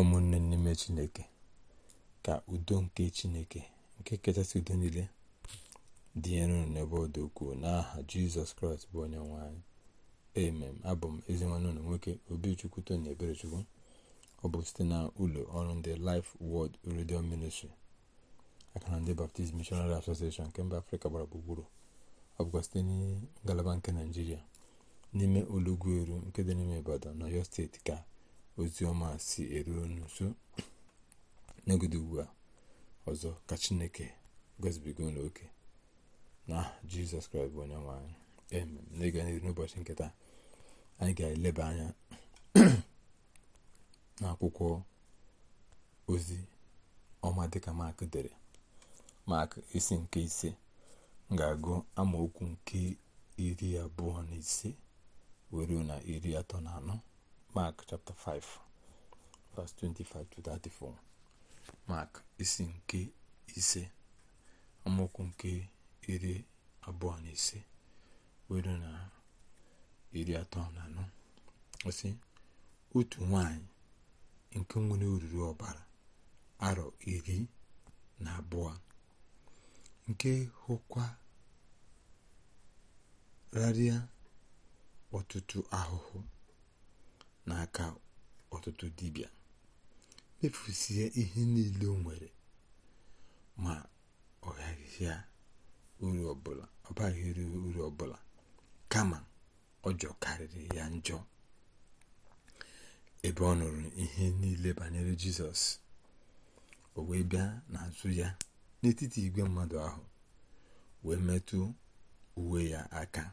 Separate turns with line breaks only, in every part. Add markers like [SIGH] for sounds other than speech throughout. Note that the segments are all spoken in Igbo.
ụmụnne n'ime chineke ka udo nke chineke nke kachasị udo niile dịnyere enu n'ebe ọ dị ukwuu n'aha jizọs kraịst bụ onye nwe anyị emem abụ m ezinwanne ụlọ nwoke obichukwu tony eberechukwu ọ bụ site na ụlọ ọrụ ndị Life Word Radio Ministry aka na ndị Baptist Missionary Association nke mba afrịka gbara gburugburu ọ bụkwa site na ngalaba nke naijiria n'ime olugbu eru nke dị n'ime ibadan na yo steeti ka ozi ọma si eru unu nso [COUGHS] ugbu a ọzọ ka chineke gozibigo n'oke na jizọs kraịst bụ onye nwe anyị n'ịga n'ihu n'ụbọchị nketa anyị ga-eleba anya [COUGHS] na akwụkwọ ozi ọma dịka mak dere mak isi nke ise ga-agụ amaokwu nke iri abụọ na ise were na iri atọ na anọ Mark chapter 5 verse 25 34 isi nke ise amaokwu nke iri abụọ na ise were na iri atọ na anọ osi otu nwanyị nke nwere oriri ọbara arọ iri na abụọ nke hụkwa rarịa ọtụtụ ahụhụ n'aka ọtụtụ dibịa mefusie ihe niile o nwere ma ọ gaghị uru ọbụla ọ baghị uru ọbụla kama ọjọọ karịrị ya njọ ebe ọ nụrụ ihe niile banyere jizọs o wee bịa n'azụ ya n'etiti igwe mmadụ ahụ wee metụ uwe ya aka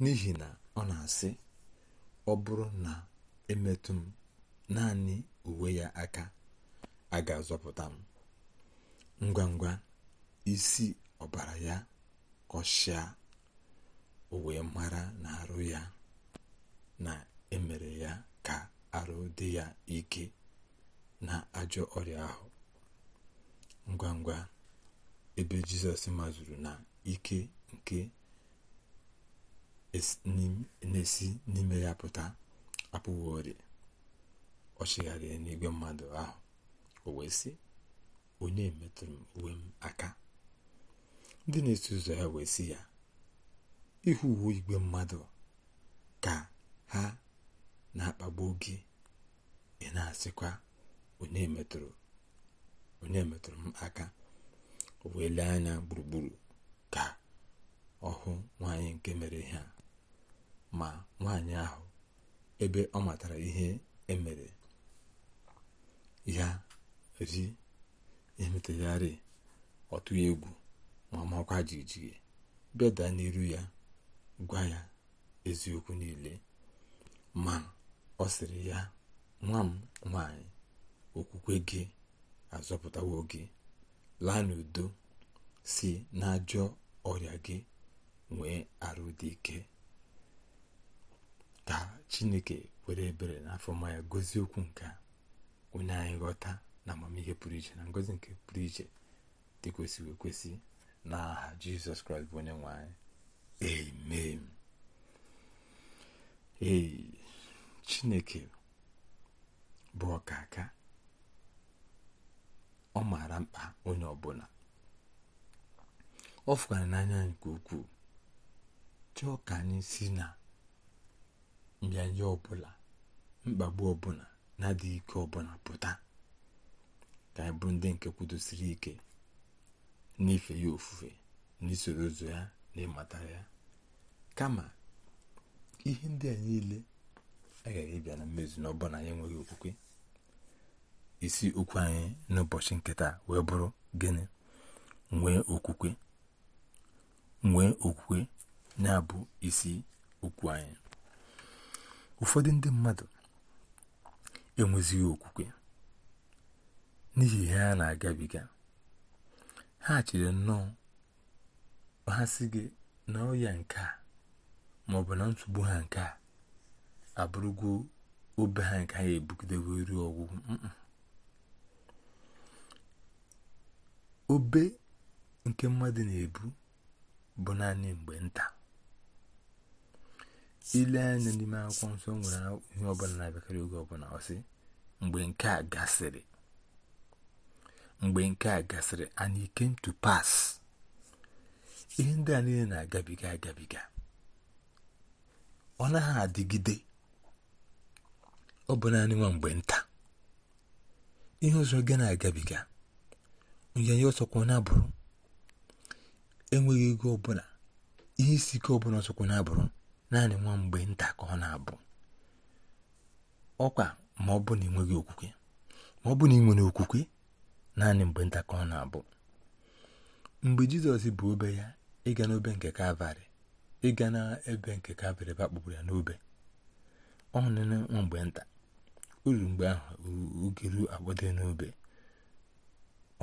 n'ihi na ọ na-asị ọ bụrụ na emetụ m naanị uwe ya aka a ga-azọpụta m ngwa ngwa isi ọbara ya kọshịa o mara na arụ ya na emere ya ka arụ dị ya ike na ajọ ọrịa ahụ ngwa ngwa ebe jizọs mazuru na ike nke na-esi n'ime ya pụta apụghị ọ chịgharịrị n'igwe mmadụ ahụ o wee sị onye metụrụ uwe m aka ndị na esi ụzọ ya wee si ya ịhụ uwe igwe mmadụ ka ha na-akpagbu gị ị na-asịkwa onye metụrụ onye metụrụ m aka o wee lee anya gburugburu ka ọ hụ nwaanyị nke mere ha. ma nwaanyị ahụ ebe ọ matara ihe emere ya ri emetagharị ọtụ egwu ma makwa jijiji bịa n'iru ya gwa ya eziokwu niile ma ọ sịrị ya nwa m nwaanyị okwukwe gị azọpụtawo gị laa n'udo si n'ajọ ọrịa gị nwee arụ dị ike chineke were ebere n'afọ afọma ya gozie okwu nke onye anyị ghọta na amamihe pụrụ iche na ngozi nke pụrụ iche dị kwesị ekwesị n'aha aha jizọs kraịst bụ onye nwe anyị m ee chineke bụ ọkaka ọ maara mkpa onye ọbụla ọ fụkwara n'anya nke ukwuu chọọ ka anyị si na mbịanje ọbụla mkpagbu ọbụla na-adịghị ike ọbụla pụta ka anyị bụrụ ndị nke kwudosiri ike n'ife ya ofufe n'isoro ụzọ ya na ịmata ya kama ihe ndị a niile agaghị ịbịa na mmezu na ọbụla anyị enweghị okwukwe isi okwu anyị n'ụbọchị nkịta wee bụrụ gịnị nwee okwukwe nwee okwukwe na-abụ isi okwu anyị ụfọdụ ndị mmadụ enwezighị okwukwe n'ihi ihe a na-agabiga ha chere nnọọ ha sị gị na ọya nke a ma ọ na nsogbu ha nke a abụrụgo obe ha nke ha ebugidebe ruo ọgwụgwụ obe nke mmadụ na-ebu bụ naanị mgbe nta ile anya n'ime akwụkwọ nsọ nwere ihe ọbụla na-abịakarị oge ọbụla ọsị mgbe nke a gasịrị mgbe nke a gasịrị and it came to pass ihe ndị a niile na-agabiga agabiga ọ naghị adịgide ọ bụ naanị nwa mgbe nta ihe ọzọ gị na-agabiga nyanye ọsọkwa na-abụrụ enweghị ego ọbụla ihe isi ike ọbụla ọsọkwa na-abụrụ naanị nwa mgbe nta ka ọ na-abụ ọkwa ma ọ bụ na ị nweghị okwukwe ma ọ bụ na ị nwere okwukwe naanị mgbe nta ka ọ na-abụ mgbe jizọs bụ obe ya ịga n'obe nke kalvarị ịga n'ebe nke kalvarị bakpụrụ ya n'obe ọ nụnụ nwa mgbe nta uru mgbe ahụ oge ruo agbado n'obe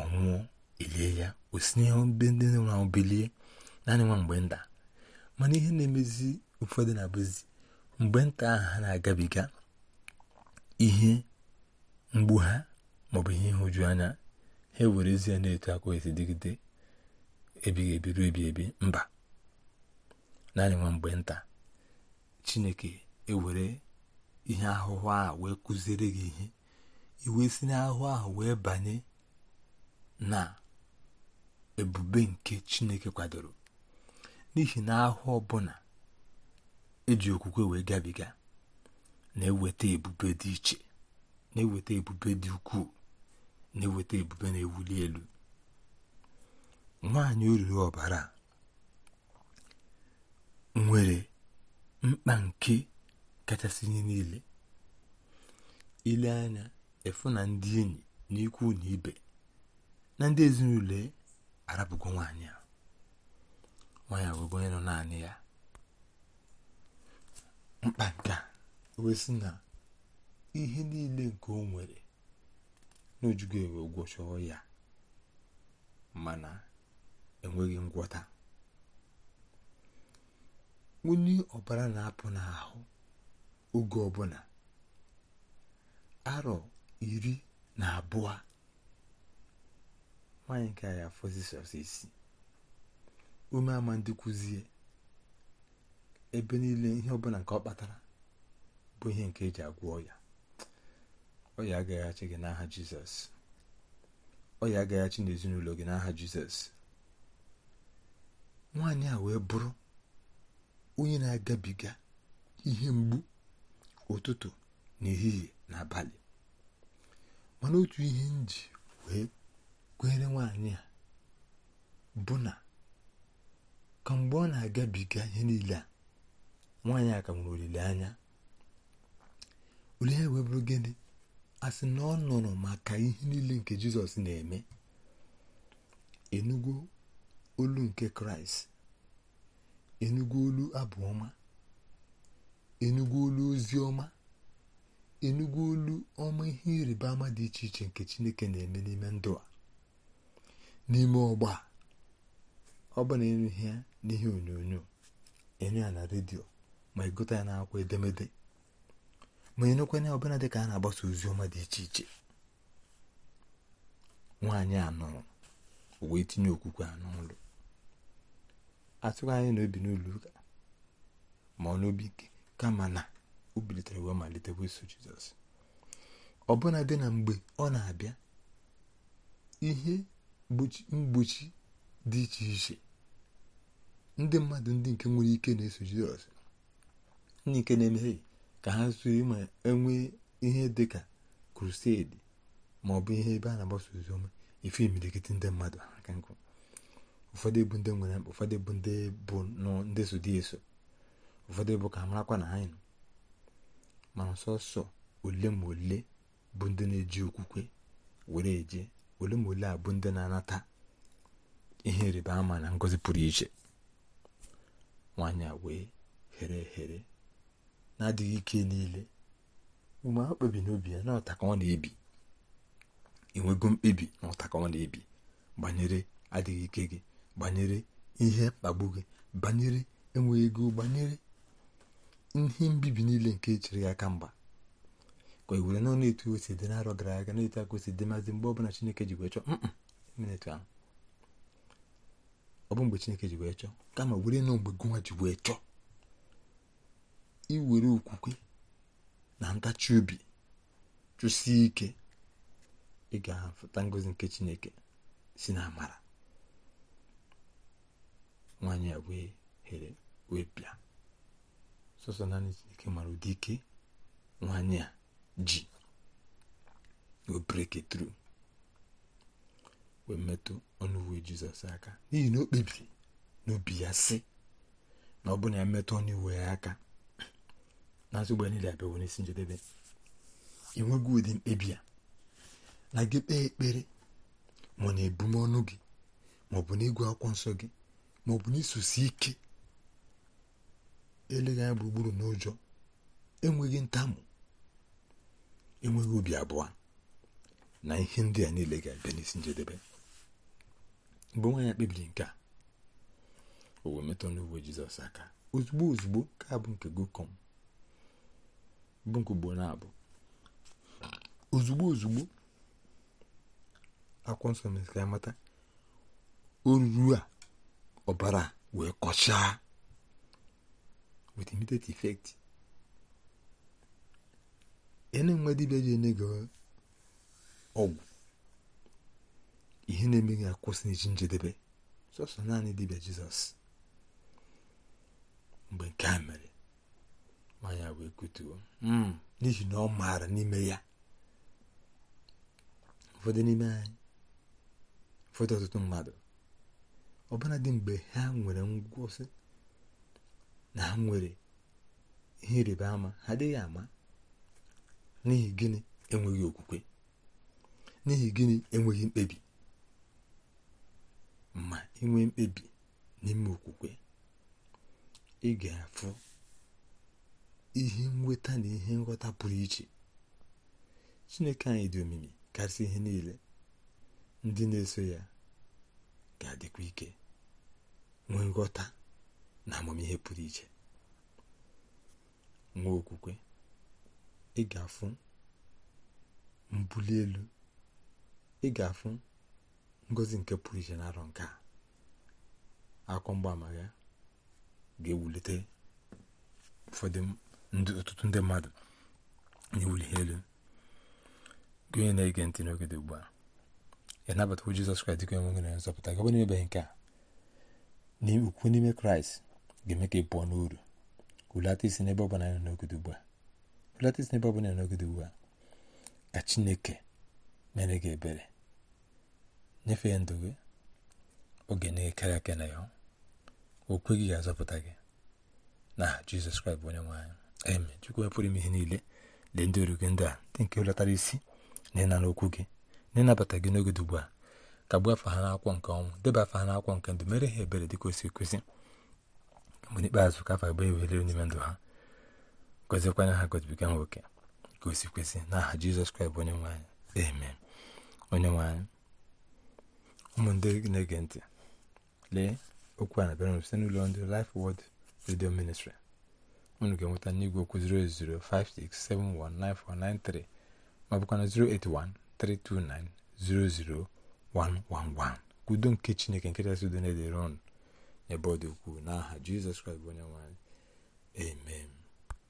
ọ elie ya o si n'ihe ndị nwa ahụ bilie naanị nwa mgbe nta mana ihe na-emezi ụfọdụ na-abụzi mgbe nta ahụ ha na-agabiga ihe mgbu ha maọbụ ihe ịhụju anya ha ewere ezi ya na-eto akwa esi dịgide ebighị ebi ruo ebi mba naanị nwa mgbe nta chineke ewere ihe ahụhụ a wee kụziere gị ihe iwe si n'ahụhụ ahụ wee banye na ebube nke chineke kwadoro n'ihi na ahụ ọbụla E ji okwukwe wee gabiga na-eweta ebube dị iche na-eweta ebube dị ukwuu na-eweta ebube na-ewuli elu nwanyị oriri ọbara nwere mkpa nke kachasị ihe niile ile anya efu na ndị enyi na ikwu na ibe na ndị ezinụlọ e arapụgo nwaanyị a nwaanyị abụgo onye nọ naanị ya mkpa nke a na ihe niile nke o nwere n'ojugo ewe gwọchọọ ya mana enweghị ngwọta onye ọbara na-apụ n'ahụ oge ọbụla arọ iri na abụọ nwaanyị nke ya afọzisọsọ isi ume ama ndị kụzie ebe niile ihe ọbụla nke ọ kpatara bụ ihe nke eji agwọ ọya ọya agaghachi gị n'aha jizọs ọya agaghachi n'ezinụlọ gị n'aha jizọs nwaanyị a wee bụrụ onye na-agabiga ihe mgbu ụtụtụ n'ehihie na abalị mana otu ihe m wee kwenyere nwaanyị a bụ na kamgbe ọ na-agabiga ihe niile a nwaanyị a ka nwere olileanya olee wee bụrụ gịnị a sị na ọ nọrọ maka ihe niile nke jizọs na-eme enugwu olu nke kraịst enugwu olu abụ ọma olu ozi ọma enugwu olu ọma ihe ịrịba ama dị iche iche nke chineke na-eme n'ime ndụ a n'ime ọgba ọ bụ na ịnụ ihe onyonyo ịnụ ya na redio ma ịgụta ya n'akwụkwọ edemede ma enyekwanye ọbụla dị ka a na-agbasa ozi ọma dị iche iche nwaanyị a uwe tinye okwukwe a n'ụlọ atụghị anyị na obi n'ụlọ ụka ma ọ n'obi ike kama na o bilitere wee malite iso jizọs ọbụna dị na mgbe ọ na-abịa ihe mgbochi dị iche iche ndị mmadụ ndị nke nwere ike na-eso jizọs ndị nke na-emehie ka ha zuru ma enwee ihe dị ka krusedi ma ọ bụ ihe ebe a na-agbasa oziọma ife imilikiti ndị mmadụ aka nkụ ụfọdụ bụ ndị nwere mkpa ụfọdụ bụ ndị bụ ndị so dị eso ụfọdụ bụ ka marakwa na anyị nọ mana sọsọ ole ma ole bụ ndị na-eji okwukwe were eje ole ma ole a bụ ndị na-anata ihe rịba ama na ngọzi pụrụ iche nwanyị a wee here ehere na-adịghị ike niile mgbe ha kpebi n'obi ya na ọta ọ na-ebi enwego mkpebi na ọta ọ na-ebi banyere adịghị ike gị banyere ihe mkpagbu gị banyere enweghị ego banyere ihe mbibi niile nke e chiri ya aka mgba ka e were na etu osi dị n'arọ gara aga na-etu aka o dị maazị mgbe ọbụla Chineke ji wee chọọ ọ bụ mgbe Chineke ji wee chọọ kama were na mgbe gụnwa ji wee chọọ iwere okwukwe na ntachi obi chụsie ike ị ga ngozi nke chineke si na amara nwaanyị a wee here wee bịa sọsọ naanị chineke mara ụdị ike nwaanyị a ji o tru wee metụ ọnụ uwe aka n'ihi na o kpebiri n'obi ya si na ọ bụ na ya metụ ọnụ uwe ya aka n'azụ ụgbọ niile abịawo n'isi njedebe enweghị ụdị mkpebi a na gị kpee ekpere ma na ọnụ gị ma ọ bụ n'igwe akwụkwọ nsọ gị ma ọ bụ n'isusi ike eleghị anya gburugburu n'ụjọ enweghị ntamu enweghị obi abụọ na ihe ndị a niile ga-abịa n'isi njedebe mgbe nwaanyị kpebiri nke a o wee metụ n'uwe jizọs aka ozugbo ozugbo ka abụ nke gokom bụ nke ugboro abụọ ozugbo ozugbo akwụkwọ nsọ o ka ya a ọbara wee kọchaa with immediate effect ya na-enwe dibịa ji enye gị ọgwụ ihe na-eme gị akwụsị iji njedebe sọsọ naanị dibịa jizọs mgbe nke a mere nwaanyị wee kutuo n'ihi na ọ maara n'ime ya ụfọdụ n'ime anyị ụfọdụ ọtụtụ mmadụ ọbụla dị mgbe ha nwere ngwụsị na ha nwere ihe ịrịba ama ha adịghị ama n'ihi gịnị enweghị okwukwe n'ihi gịnị enweghị mkpebi ma inwe mkpebi n'ime okwukwe ị ga-afụ ihe nweta na ihe nghọta pụrụ iche chineke anyị dị omimi karịsị ihe niile ndị na-eso ya ga-adịkwa ike nwee nghọta na amamihe pụrụ iche nwee okwukwe ị ga-afụ mbuli elu ị ga-afụ ngozi nke pụrụ iche na arọ nke a akwọ mgbaama ya ga-ewulite ụfọdụ ọtụtụ ndị mmadụ n'iwuli ha elu na-ege ntị n'oge dị ugbu a ya nabatakwa Jizọs Kraịst dịka onwe na nzọpụta n'ebe nke a ukwu n'ime Kraịst ga-eme ka ị pụọ n'uru hulata isi n'ebe ọ bụla n'oge dị ugbu a isi n'ebe ọ bụla n'oge dị ugbu a ka Chineke mere gị ebere nyefee ndụ gị oge na-ekere aka na ya okwe gị ga-azọpụta gị na Jizọs Kraịst bụ onye nwe eme chukwu pụrụ ime ihe niile lee ndị oru gị ndị a ndị nke hụlatara isi na ịna okwu gị na ịnabata gị n'oge dugbu ugbu a ka gbuo afa ha n'akwụkwọ nke ọnwụ deba afa ha n'akwụkwọ nke ndụ mere ha ebere dịka o si ekwesị mgbe n'ikpeazụ ka afa gbaa ewelere n'ime ndụ ha gọzikwanye ha gọzibiga nwoke ka o si na aha jizọs kraịst bụ onye nwe anyị onye nwe anyị ụmụ na-ege ntị lee okwu a na-abịara site n'ụlọ ndị lif wod Radio Ministry unu ga-enweta n'igwe okwu 08056719493 ma bụkwa na udo nke chineke nke chasị udo na-edere ọnụ ukwu ọ dị ukwuu n'aha jizọs kraịst bụ onye nwanyị amen